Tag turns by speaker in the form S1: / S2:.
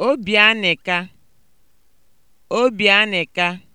S1: Obi Obi Obianịka